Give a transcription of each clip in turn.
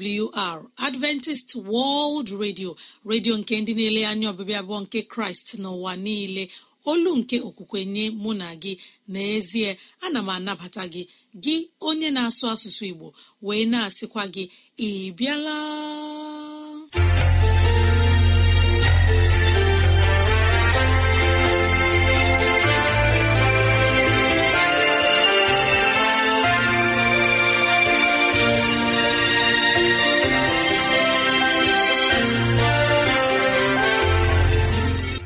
awr adventist world radio redio nke ndị na-ele anya ọbịbịa abụọ nke kraịst n'ụwa niile olu nke okwukwe nye mụ na gị n'ezie ana m anabata gị gị onye na-asụ asụsụ igbo wee na-asịkwa gị ị bịala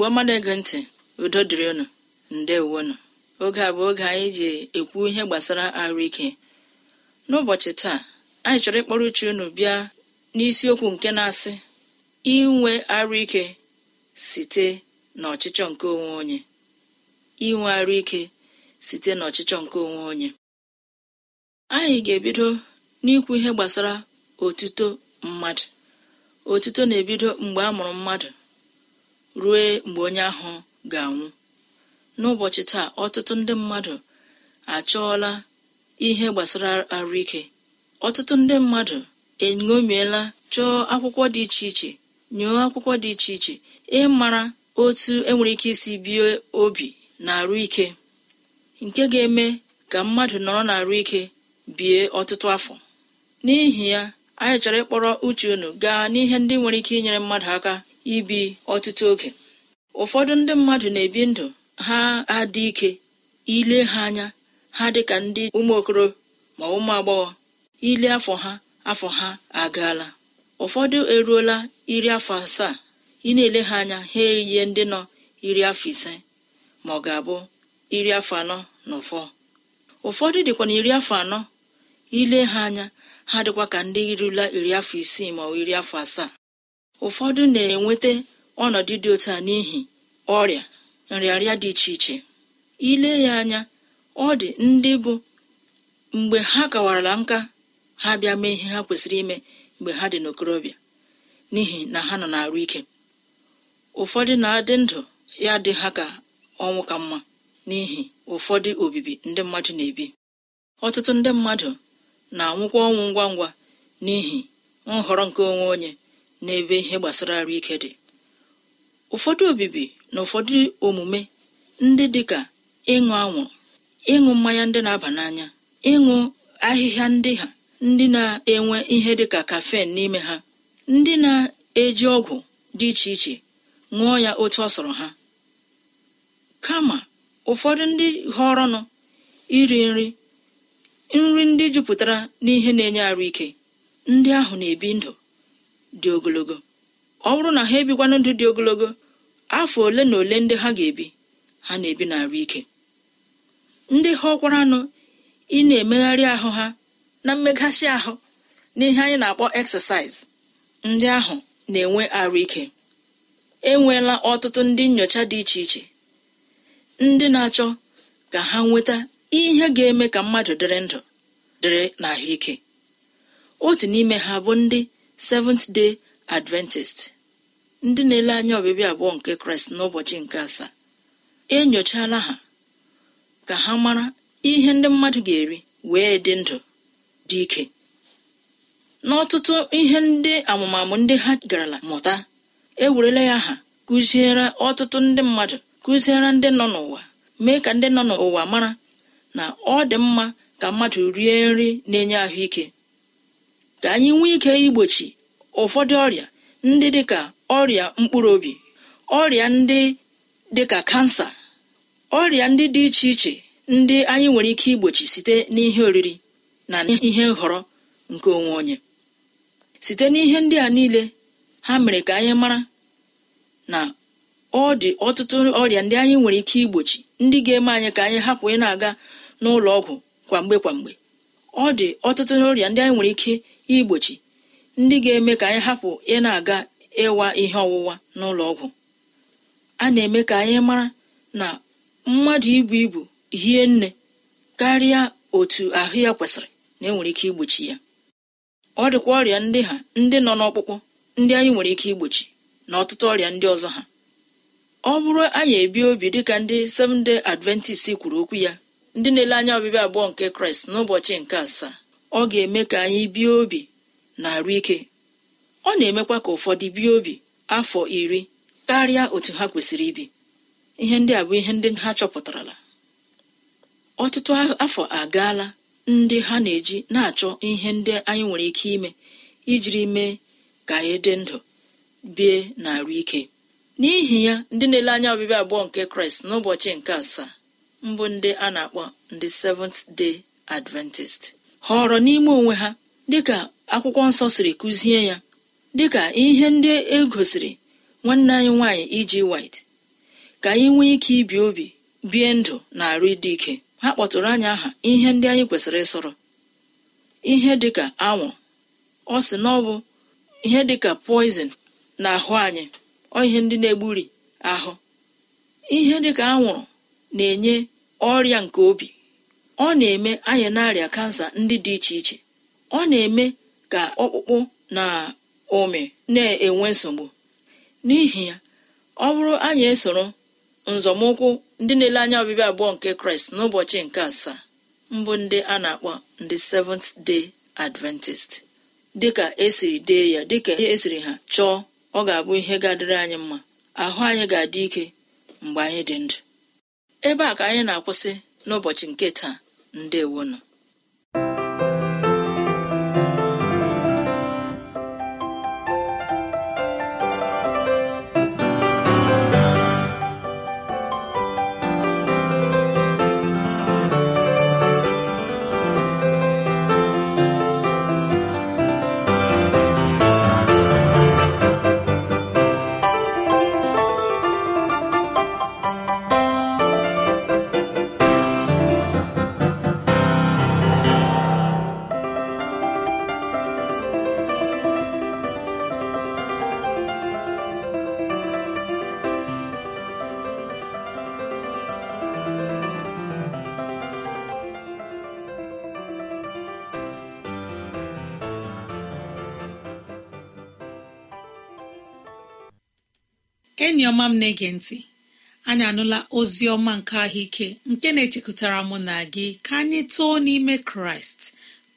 igbo ọma na-ege ntị udo dịrị unu ndewonu oge a bụ oge anyị ji ekwu ihe gbasara arụ ike n'ụbọchị taa anyị chọrọ ịkpọrọ uche unu bịa n'isiokwu nke na-asị inwe arụ ike site n'ọchịchọ nke onwe onye inwe arụ ike site n'ọchịchọ nke onwe onye anyị ga-ebido n'ikwu ihe gbasara otuto mmadụ otuto na-ebido mgbe a mụrụ mmadụ ruo mgbe onye ahụ ga-anwụ n'ụbọchị taa ọtụtụ ndị mmadụ achọọla ihe gbasara arụike ọtụtụ ndị mmadụ eṅomiela chọọ akwụkwọ dị iche iche nyụọ akwụkwọ dị iche iche ịmara otu enwere ike isi bie obi na arụ ike nke ga-eme ka mmadụ nọrọ na arụ ike bie ọtụtụ afọ n'ihi ya anyị chọrọ ịkpọrọ uche unu gaa n'ihe ndị nwere ike inyere mmadụ aka ibi ọtụtụ oge ụfọdụ ndị mmadụ na-ebi ndụ ha adị ike ile ha anya ha dị ka ndị ụmụokoro ma ụmụ agbọghọ ile afọ ha afọ ha agaala ụfọdụ eruola iri afọ asaa ị na-ele ha anya ha eyie ndị nọ iri afọ ise ma ọ ga-abụ iri afọ anọ na ụfọ ụfọdụ dịkwa na iri afọ anọ ile ha anya ha dịkwa ka ndị irula iri afọ isii ma ọ iri afọ asaa ụfọdụ na-enweta ọnọdụ dị otu a n'ihi ọrịa nrịarịa dị iche iche ile ya anya ọ dị ndị bụ mgbe ha kawarala nka ha bịa mee ihe ha kwesịrị ime mgbe ha dị n'okorobịa n'ihi na ha nọ na-arụ ike ụfọdụ na-adị ndụ ya dị ha ka ọnwụ ka mma n'ihi ụfọdụ obibi ndị mmadụ na-ebi ọtụtụ ndị mmadụ na-anwụkwa ọnwụ ngwa ngwa n'ihi nhọrọ nke onwe onye n'ebe ihe gbasara arụ ike dị ụfọdụ obibi na ụfọdụ omume ndị dịka ịṅụ anwụrụ ịṅụ mmanya ndị na-aba n'anya ịṅụ ahịhịa ndị ha ndị na-enwe ihe dịka kafen n'ime ha ndị na-eji ọgwụ dị iche iche ṅụọ ya otu ọ sọrọ ha kama ụfọdụ ndị họrọnụ iri nri nri ndị jupụtara n'ihe na-enye arụ ike ndị ahụ na-ebi ndụ dị ogologo ọ bụrụ na ha ebikwana ndụ dị ogologo afọ ole na ole ndị ha ga-ebi ha na-ebi n'arụ ike ndị ha ọkwara anụ ị na-emegharị ahụ ha na mmeghachi ahụ n'ihe anyị na-akpọ eksesaiz ndị ahụ na-enwe arụ ike enweela ọtụtụ ndị nyocha dị iche iche ndị na-achọ ka ha nweta ihe ga-eme ka mmadụ dịrị ndụ dịrị ahụike otu n'ime ha bụ ndị seventh day adventist ndị na-ele anya obibi abụọ nke kraịst n'ụbọchị nke asaa enyochala ha ka ha mara ihe ndị mmadụ ga-eri wee dị ndụ dị ike n'ọtụtụ ihe ndị amụmamụ ndị ha garala mụta ewerela ya ha kụziere ọtụtụ ndị mmadụ kụziere ndị nọ n'ụwa mee ka ndị nọ n'ụwa mara na ọ dị mma ka mmadụ rie nri na-enye ahụike ka anyị nwee ike igbochi ụfọdụ ọrịa ndị dịka ọrịa mkpụrụ obi ọrịa ndị dịka kansa ọrịa ndị dị iche iche ndị anyị nwere ike igbochi site n'ihe oriri na ihe nhọrọ nke onwe onye site n'ihe ndị a niile ha mere ka anyị mara na ọ dị ọtụtụ ọrịa ndị anyị nwere ike igbochi ndị ga-eme anyị ka anyị hapụ ị na-aga n'ụlọ ọgwụ kwa mgbe kwa mgbe ọ dị ọtụtụ ọrịa ndị anyị nwere ike igbochi ndị ga-eme ka anyị hapụ ị na-aga ịwa ihe ọwụwa n'ụlọ ọgwụ a na-eme ka anyị mara na mmadụ ibu ibu hie nne karịa otu ahụ ya kwesịrị na enwere ike igbochi ya ọ dịkwa ọrịa ndị ha ndị nọ n'ọkpụkpụ ndị anyị nwere ike igbochi na ọtụtụ ọrịa ndị ọzọ ha ọ bụrụ anyị ebi obi dịka ndị Seventh Day Adventist kwuru okwu ya ndị na-ele anya ọbịbịa abụọ nke Kraịst n'ụbọchị nke asaa ọ ga-eme ka anyị bie obi na-arụ ike ọ na-emekwa ka ụfọdụ bie obi afọ iri karịa otu ha kwesịrị ibi ihe ndị a bụ ihe ndị ha chọpụtarala ọtụtụ afọ agaala ndị ha na-eji na-achọ ihe ndị anyị nwere ike ime ijiri mee ka anyị dị ndụ bie na-arụ ike n'ihi ya ndị na-ele anya ọbịbịa abụọ nke kraịst n'ụbọchị nke asaa mbụ ndị a na-akpọ ndị Seventh Day Adventist họrọ n'ime onwe ha dịka akwụkwọ nsọ siri kụzie ya dịka ihe ndị e gosiri nwanne anyị nwaanyị iji e wit ka anyị nwee ike ibi obi bie ndụ na arụ ịdị ike ha kpọtụrụ anyị aha ihe ndị anyị kwesịrị ịsọrọ ihe dịka anwụ ọ sị na ọ bụ ihe dịka poizin na ahụ anyị ọ ihe ndị na-egburi ahụ ihe dịka anwụrụ na-enye ọrịa nke obi ọ na-eme anyị na-arịa kansa ndị dị iche iche ọ na-eme ka ọkpụkpụ na ụmị na-enwe nsogbu n'ihi ya ọ bụrụ anyị esoro nzọmụkwụ ndị na-ele anya ọbịbịa abụọ nke kraịst n'ụbọchị nke asaa mbụ ndị a na-akpọ ndị seventh day adventist dịka esiri dee ya dịka esiri ha chọọ ọ ga-abụ ihe ga-adịrị anyị mma ahụ anyị ga-adị ike mgbe anyị dị ndụ ebe a ka anyị na-akwụsị n'ụbọchị nke taa ndewonụ ọma m na-ege ntị anyị anụla ozi ọma nke ahụike nke na-echekọtara mụ na gị ka anyị too n'ime kraịst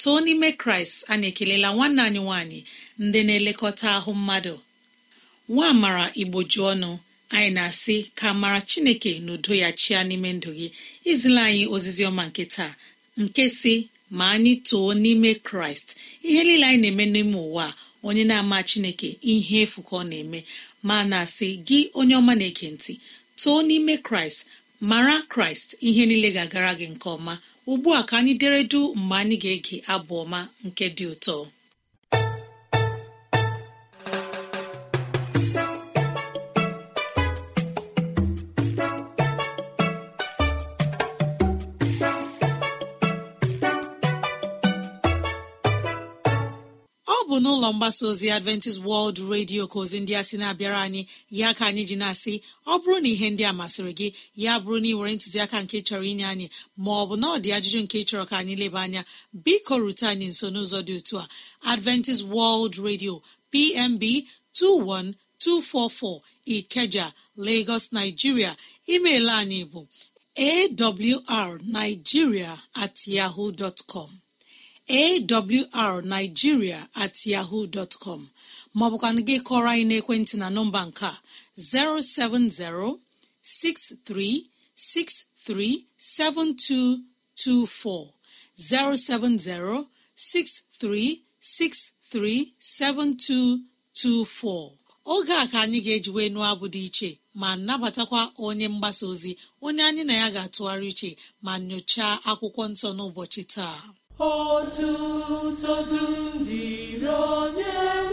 too n'ime kraịst anyị ekelela nwanne anyị nwanyị ndị na-elekọta ahụ mmadụ nwa amara igboju ọnụ anyị na-asị ka mara chineke na udo ya chia n'ime ndụ gị izila anyị ozizi ọma nke taa nke si ma anyị too n'ime kraịst ihe niile anyị na-eme n'ime ụwa onye na-ama chineke ihe efu ka ọ na-eme ma na-asị gị onye ọma na-ege ntị too n'ime kraịst mara kraịst ihe niile ga-agara gị nke ọma ugbu a ka anyị dere du mgbe anyị ga-ege abụ ọma nke dị ụtọ mgbasa ozi adventist World Radio ka ozi ndị a sị na-abịara anyị ya ka anyị ji na-asị ọ bụrụ na ihe ndị a masịrị gị ya bụrụ na ị nwere ntụziaka nke chọrọ inye anyị ma ọ bụ na ọ dị ajụjụ nke chọrọ ka anyị leba anya biko rute anyị nso n'ụzọ dị otu a Adventist World Radio PMB 21244 Ikeja Lagos Nigeria email anyị bụ awrnigeria at yahoo dot com awrnigeria at yahoo dọtcọm maọbụkwanụ gị kọrọ anyị n'ekwentị na nọmba nke 070 07063637224 7224 oge a ka anyị ga-ejiwe nụọ abụ dị iche ma nabatakwa onye mgbasa ozi onye anyị na ya ga-atụgharị uche ma nyochaa akwụkwọ nsọ n'ụbọchị taa Ọtụtụ dum dịrị onye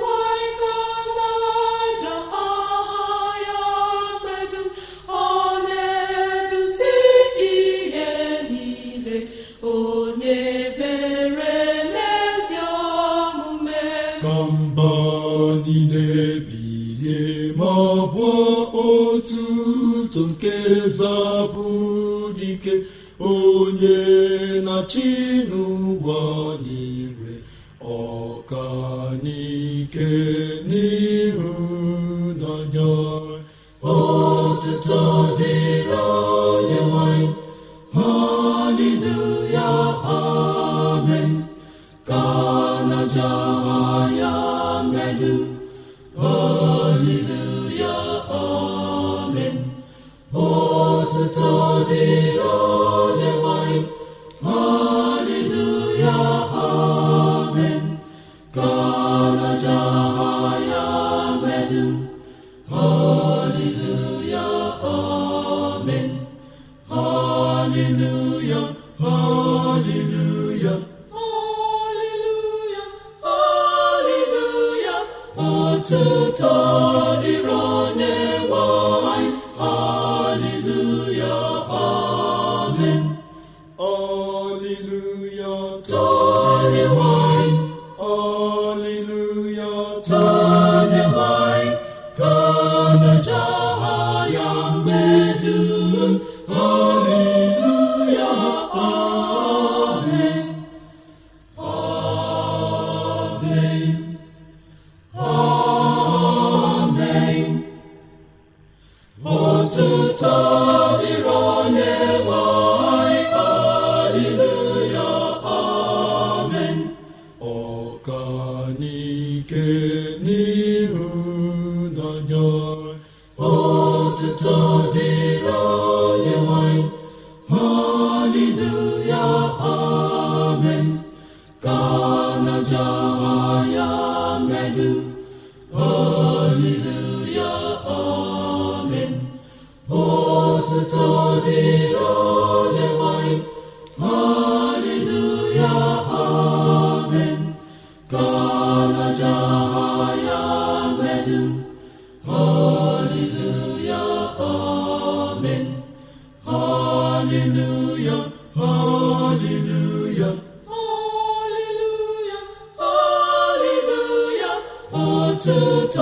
Eme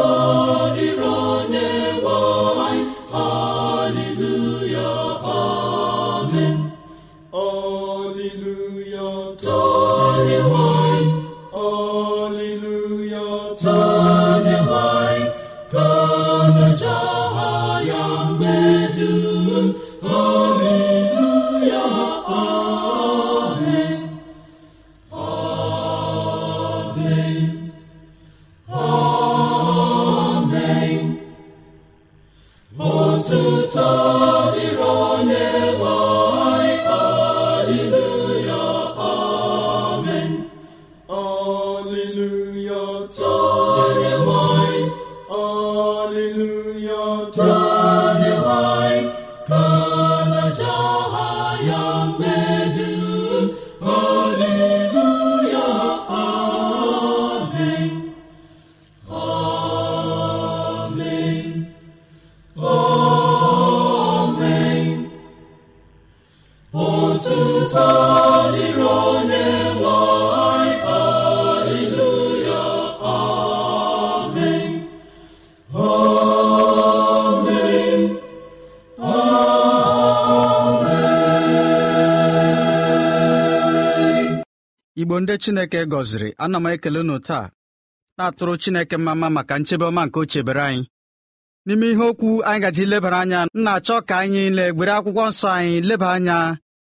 nsọ Chineke gọziri ana m ekele unu taa na-atụrụ Chineke mma maka nchebe ọma nke o chebere anyị n'ime ihe okwu anyị gaji lebara anya m na-achọ ka anyị na-egbere akwụkwọ nsọ anyị leba anya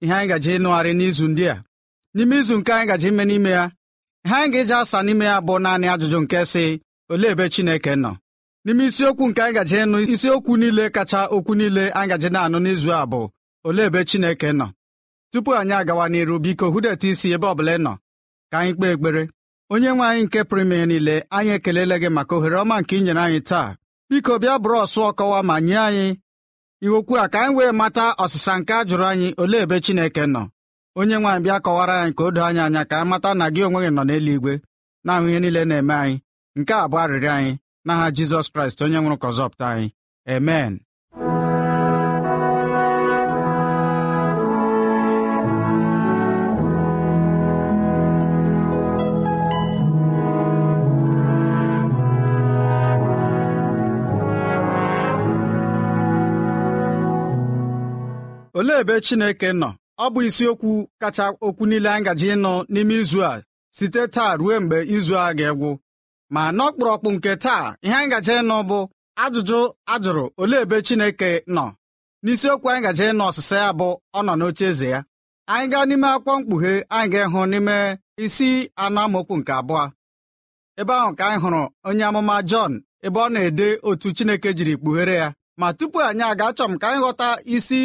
ihe anyị gaji ịnụgharị n'izu ndị a n'ime izu nke anyị gaji ime n'ime ya ihe anyị ga-eji asa n'ime ya bụ naanị ajụjụ nke si olee ebe Chineke nọ n'ime isiokwu nke anyị gaji ịnụ isiokwu niile kacha okwu niile anyị gaji na-anụ n'izu a bụ olee ebe Chineke nọ tupu anyị agawa n'iru biko hụdeta isi ebe ọ bụla ị nọ ka anyị kpee ekpere onye nwe anyị nke pụrụme ya niile anyị ekelela gị maka ohere ọma nke inyere anyị taa biko bịa bụrụ ọsụ ọkọwa ma nye anyị iwokwu a ka anyị wee mata ọsịsa nke a jụrụ anyị olee ebe Chineke nọ onye nwaanyị bịa kọwara anyị ka o doo anyị anya ka anyị mata na gị onwe gị nọ n'eluigwe na-ahụ ihe niile na-eme anyị nke a bụ arịrịọ anyị n'aha Jizọs Kraịst onye nwụrụ ka anyị emen olee ebe Chineke nọ ọ bụ isiokwu kacha okwu niile anyị gaji ịnụ n'ime izu a site taa ruo mgbe izu a ga-egwu ma n'ọkpụrụkpụ nke taa ihe anyị gaji ịnụ bụ ajụjụ ajụrụ olee ebe Chineke nọ n'isiokwu anyị gaji ịnụ ọsịsa ya bụ ọ nọ n'oche eze ya anyị gaa n'ime akwụkwọ mkpughe anyị ga-ịhụ n'ime isi anụ amokwu nke abụọ ebe ahụ ka anyị hụrụ onye amụma Jọn ebe ọ na-ede otu Chineke jiri kpughere ya ma tupu anyị aga achọ m ka anyị ghọta isi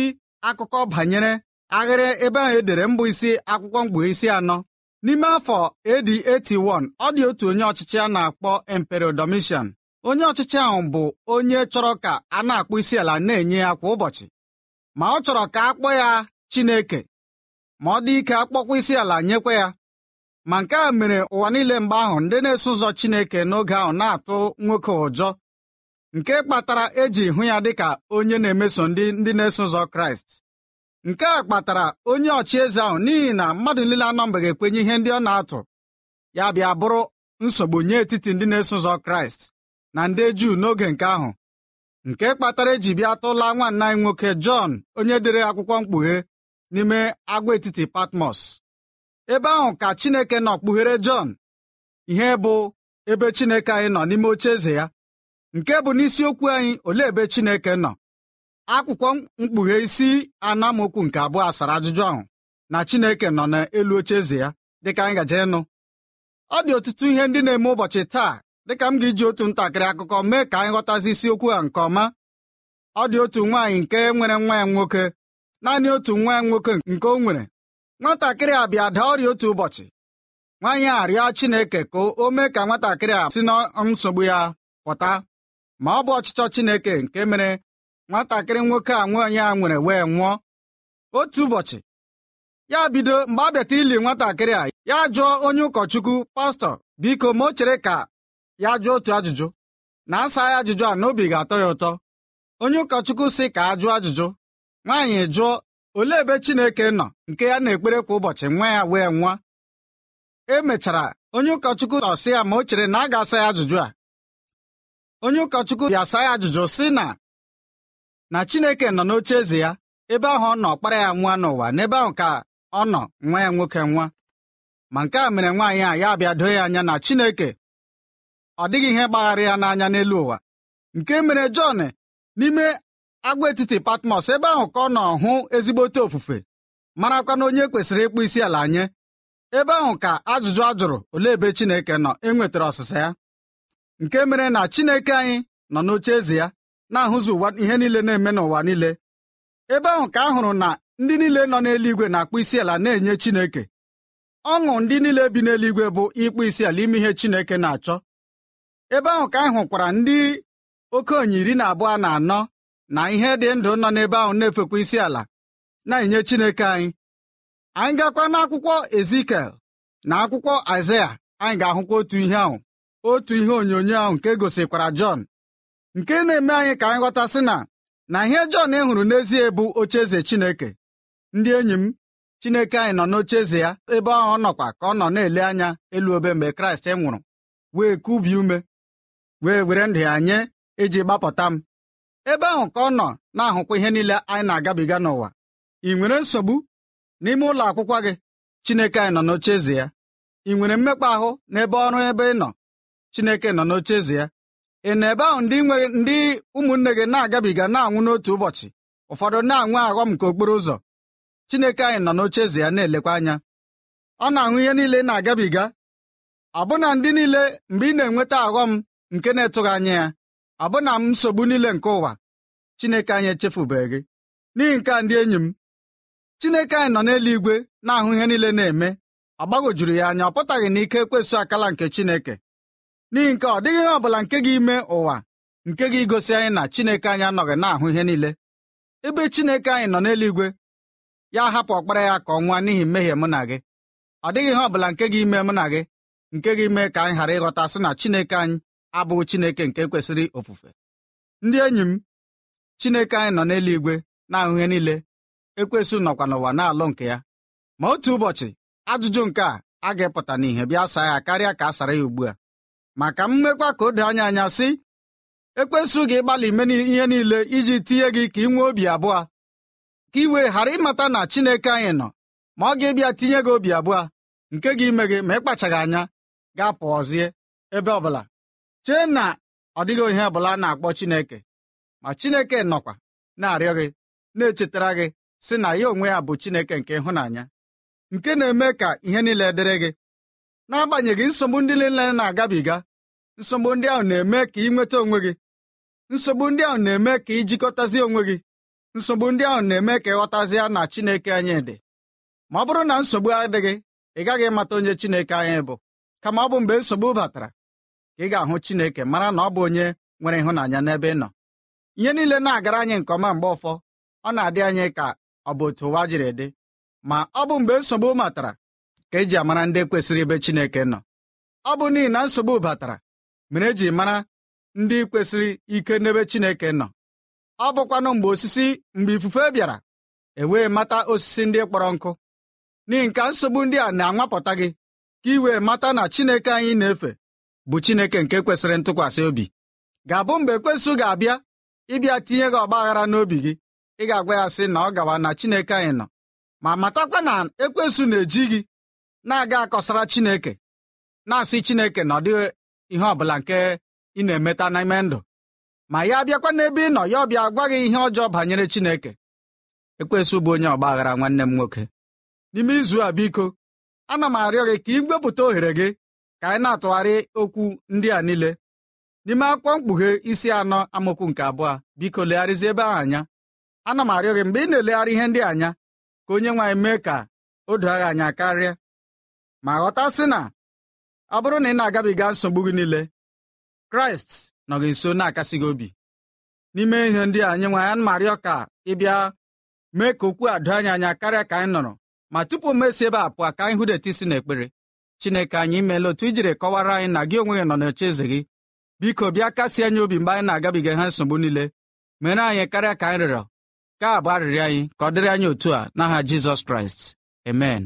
akụkọ banyere aghịrị ebe ahụ edere mbụ isi akwụkwọ isi anọ n'ime afọ AD 81 ọ dị otu onye ọchịchị a na-akpọ Emperor onye ọchịchị ahụ bụ onye chọrọ ka a na-akpụ isi ala na-enye ya kwa ụbọchị ma ọ chọrọ ka a kpọọ ya Chineke ma ọ dị ike akpọkwa isi ala nyekwa ya ma nke a mere ụwa niile mgbe ahụ ndị na-eso ụzọ Chineke n'oge ahụ na-atụ nwoke ụjọ nke kpatara eji hụ ya dịka onye na-emeso ndị ndị na-eso ụzọ kraịst nke a kpatara onye ọchịeze ahụ n'ihi na mmadụ niile anọ mgbe ga-ekwenye ihe ndị ọ na-atụ ya bịa bụrụ nsogbu nye etiti ndị na-eso ụzọ kraịst na ndị juu n'oge nke ahụ nke kpatara eji bịa tụla nwanna anyị nwoke jọn onye dere akwụkwọ mkpughe n'ime agwaetiti patmos ebe ahụ ka chineke nọ kpughere jọn ihe bụ ebe chineke anyị nọ n'ime oche eze ya nke bụ n'isiokwu anyị olee ebe Chineke nọ akwụkwọ mkpughe isi anamokwu nke abụọ asara ajụjụ ahụ na Chineke nọ n'elu oche eze ya dịka gaje ịnụ ọ dị ọtụtụ ihe ndị na-eme ụbọchị taa dịka m ga-eji otu ntakịrị akụkọ mee ka anyị ghọtazi isiokwu a nke ọma ọ dị otu nwaanyị nke nwere nwa ya nwoke naanị otu nwa ya nwoke nke o nwere nwatakịrị a bịa daa ọrịa otu ụbọchị nwaanyị a rịọ Chineke ka o mee ka nwatakịrị a si na nsogbu ya pụta ma ọ bụ ọchịchọ Chineke nke mere nwatakịrị nwoke a nwaanyị a nwere wee nwụọ otu ụbọchị ya bido mgbe a bịata ili nwatakịrị a ya jụọ onye ụkọchukwu pastọ biko ma o chere ka ya jụọ otu ajụjụ na asa ya ajụjụ a n'obi ga-atọ ya ụtọ onye ụkọchukwu sị ka a jụọ ajụjụ nwaanyị jụọ olee ebe Chineke nọ nke ya na-ekpere kwa ụbọchị nwa ya wee nwa e mechara onye ụkọchukwu sị ya ma o chere na a ga-asa ya ajụjụ a onye ụkọchukwu ga-asa ya ajụjụ sị na na Chineke nọ n'oche eze ya ebe ahụ ọ nọ kpara ya nwa n'ụwa n'ebe ahụ ka ọ nọ nwa ya nwoke nwa ma nke a mere nwaanyị a ya abịado doo ya anya na Chineke ọ dịghị ihe gbaghara ya n'anya n'elu ụwa nke mere Jọn n'ime agwaetiti Patmos ebe ahụ ka ọ nọ hụ ezigbote ofufe marakwa na onye kwesịrị ịkpụ isi ala nye ebe ahụ ka ajụjụ a jụrụ olee ebe Chineke nọ enwetara ọsịsa ya nke mere na Chineke anyị nọ n'oche eze ya na-ahụzi ụwa ihe niile na-eme n'ụwa niile ebe ahụ ka a hụrụ na ndị niile nọ n'eluigwe na-akpụ isi ala na-enye Chineke ọṅụ ndị niile bi n'eluigwe bụ ịkpụ isi ala ime ihe Chineke na-achọ ebe ahụ ka anyị hụkwara ndị okenye iri na abụọ na anọ na ihe dị ndụ nọ n'ebe ahụ na-efekwa isi ala na-enye Chineke anyị anyị gakwa n'akwụkwọ Ezikiel na akwụkwọ Aịzaya anyị ga-ahụkwa otu ihe ahụ otu ihe onyonyo ahụ nke e gosikwara Jọn nke na-eme anyị ka anyị ghọtasị na na ihe Jọn hụrụ n'ezie bụ ocheeze Chineke ndị enyi m Chineke anyị nọ n'ocheeze ya ebe ahụ ọ nọkwa ka ọ nọ na-ele anya elu obe mgbe Kraịst nwụrụ wee kubi ume wee were ndụ ya nye iji gbapụta m ebe ahụ ka ọ nọ na-ahụkwa ihe niile anyị na-agabiga n'ụwa ị nwere nsogbu n'ime ụlọ akwụkwọ gị Chineke anyị nọ n'ocheeze ya ị nwere mmekpa ahụ n'ebe ọrụ ebe ị nọ chineke nọ eze ya ị na ebe ahụ ndị nwe ndị ụmụnne gị na-agabiga na-anwụ n'otu ụbọchị ụfọdụ na-anwụ aghọm nke okporo ụzọ Chineke anyị nọ eze ya na-elekwa anya ọ na-ahụ ihe niile na-agabiga abụna ndị niile mgbe ị na-enweta aghọm nke na-etụghị anya ya abụna m nsogbu niile nke ụwa Chineke anyị echefubeghị gị n'ihi nke a ndị enyi m Chineke anyị nọ n'eluigwe na-ahụ ihe niile na-eme agbagojuru ya anya ọ pụtaghị na ike ekwesụ akala nke Chineke n'ihi nke ọ dịghị ihe ọ bụla nke gị ime ụwa nke gị gosi anyị na Chineke anyị anọghị na-ahụ ihe niile ebe Chineke anyị nọ n'eluigwe ya hapụ ọkpara ya ka ọ n'ihi mmehie mụ na gị ọ dịghị ihe ọ bụla nke gị ime mụ na gị nke gị mee ka anyị ghara ịghọta sị na Chineke anyị abụghị Chineke nke kwesịrị ofufe ndị enyi m Chineke anyị nọ n'eluigwe na-ahụ ihe niile ekwesị nọkwa n'ụwa na-alụ nke ya ma otu ụbọchị ajụjụ nke a a ga-epụta n'ihe bịa saa ya karịa ka a sara ya ugbu a Maka mmekwa m ka o anya anya sị ekwesụ gị ịgbalị ime ihe niile iji tinye gị ka ị obi abụọ ka iwe ghara ịmata na Chineke anyị nọ ma ọ ga-ebịa tinye gị obi abụọ nke gị ime gị ma ịkpachaghị anya ga pụọzie. ebe ọbụla chee na ọ dịghị ihe ọbụla na-akpọ Chineke ma Chineke nọkwa na-arịọ gị na-echetara gị sị na ya onwe ya bụ Chineke nke ịhụnanya nke na-eme ka ihe niile dịrị gị n'agbanyeghị nsogbu ndị niile na-agabiga nsogbu ndị ahụ na-eme ka ị nweta onwe gị nsogbu ndị ahụ na-eme ka ị jikọtazi onwe gị nsogbu ndị ahụ na-eme ka ịghọtazie na Chineke anyị dị ma ọ bụrụ na nsogbu adịghị ị gaghị ịmata onye Chineke anyị bụ kama ọ bụ mgbe nsogbu batara ka ị ga-ahụ Chineke mara na ọ bụ onye nwere ịhụnanya n'ebe ị nọ ihe niile na-agara anyị nke ọma mgbe ụfọ ọ na-adị anyị ka ọ bụ otu ụwa jiri dị ma ọ bụ mgbe nsogbu matara ka eji amara ndị kwesịrị ebe Chineke nọ ọ bụ n'ihi na nsogbu batara mere eji mara ndị kwesịrị ike n'ebe Chineke nọ ọ bụkwanụ mgbe osisi mgbe ifufe bịara ewee mata osisi ndị kpọrọ nkụ n'ihi nka nsogbu ndị a na-anwapụta gị ka iwee mata na Chineke anyị na-efe bụ Chineke nke kwesịrị ntụkwasị obi ga-abụ mgbe ekwesụ ga-abịa ịbịa tinye gị ọgbaghara n'obi gị ị ga-agwa ya sị na ọ gawa na Chineke anyị nọ ma matakwa na ekwesụ na-eji gị na-aga akọsara Chineke na-asị Chineke na ọ dị ihe ọbụla nke ị na-emeta n'ime ndụ ma ya bịakwa n'ebe ị nọ ya ọbịa gwa gị ihe ọjọọ banyere Chineke ekwesị ụbụ onye aghara nwanne m nwoke n'ime izu a biko ana m arịọ gị ka ị wepụta ohere gị ka anyị na-atụgharị okwu ndị a niile n'ime akwụkwọ mkpughe isi anọ amụkwu nke abụọ biko legharịzi ebe ahụ anya ana m arịọ gị mgbe ị na-elegharị ihe ndị anya ka onye nwe mee ka o doo anya karịa ma ghọtasị na ọ bụrụ na ị na-agabiga nsogbu gị niile kraịst nọ gị nso na-akasị gị obi n'ime ihe ndị anyị nwa ya marịọ ka ịbịa mee ka okwu adoo anyị anya karịa ka anyị nọrọ ma tupu m ebe a pụọ ka anyị hụdeta isi n'ekpere chineke anyị imeela otu ijiri kọwara anyị na gị onwe gị nọ n'oche eze gị biko bịa kasị anyị obi mgbe anyị na-agabiga ha nsogbu niile mere anyị karịa ka anyị rịọrọ ka a bụ arịrị anyị ka ọ dịrị anyị otu a n'aha Jizọs Kraịst amen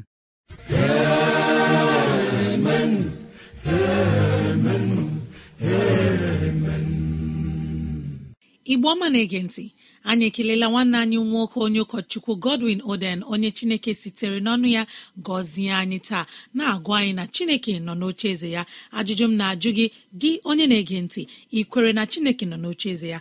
igbo ọma na-ege ntị anyị ekelela nwanne anyị nwoke onye ụkọchukwu godwin oden onye chineke sitere n'ọnụ ya gọzie anyị taa na-agụ anyị na chineke nọ n'oche eze ya ajụjụ m na-ajụ gị gị onye na-ege ntị ị na chineke nọ n'oche eze ya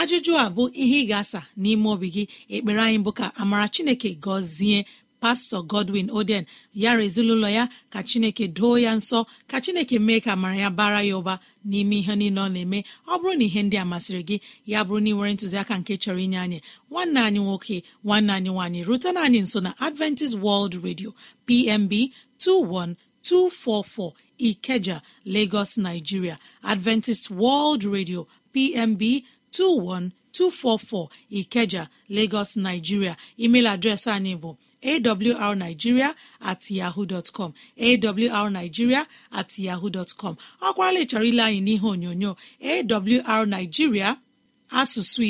ajụjụ a bụ ihe ị ga-asa n'ime obi gị ekpere anyị bụ ka amara chineke gọzie pastọ godwin oden ya rezinụlọ ya ka chineke doo ya nsọ ka chineke mee ka mara ya bara ya ụba n'ime ihe niile ọ na-eme ọ bụrụ na ihe ndị a masịrị gị ya bụrụ na ị nwere ntụziaka nke chọrọ inye anyị nwanne anyị nwoke nwanne anyị nwaanyị rutena anyị nso na adventist world radio pmb 21244 ikeja lagos nigeria adventist world radio pmb 21244 ikeja lagos nigeria email adreesị anyị bụ awrnigeria at yahoo com awrnigeria at yahoo dọtcọm ọ kwarala ile anyị n'ihe onyonyo nigeria asụsụ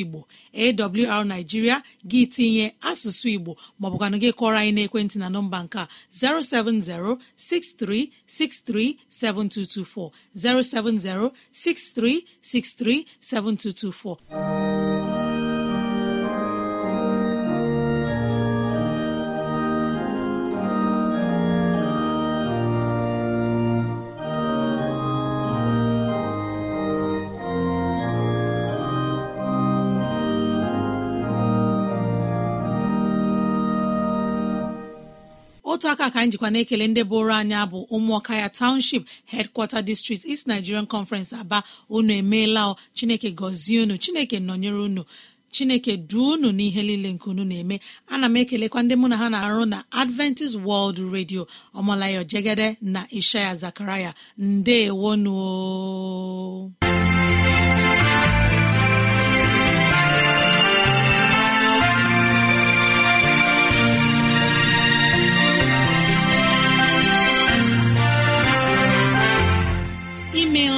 igbo nigeria gị tinye asụsụ igbo maọbụkwanụ gị kọrọ anyị n'ekwentị na nọmba nke a 070-6363-7224 070-6363-7224. otu aka ka njikwa na-ekele ndị bụrụ anya bụ ụmụọka ya township headquarter district East Nigerian Conference Aba unu emeela Chineke gọzie unu Chineke nọnyere unu chineke duo unu n'ihe niile nke unu na-eme ana m ekelekwa ndị mụ na ha na-arụ na adventist world radio ọmalayo jegede na ishaya zakaraya ndeewonuo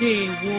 ndewo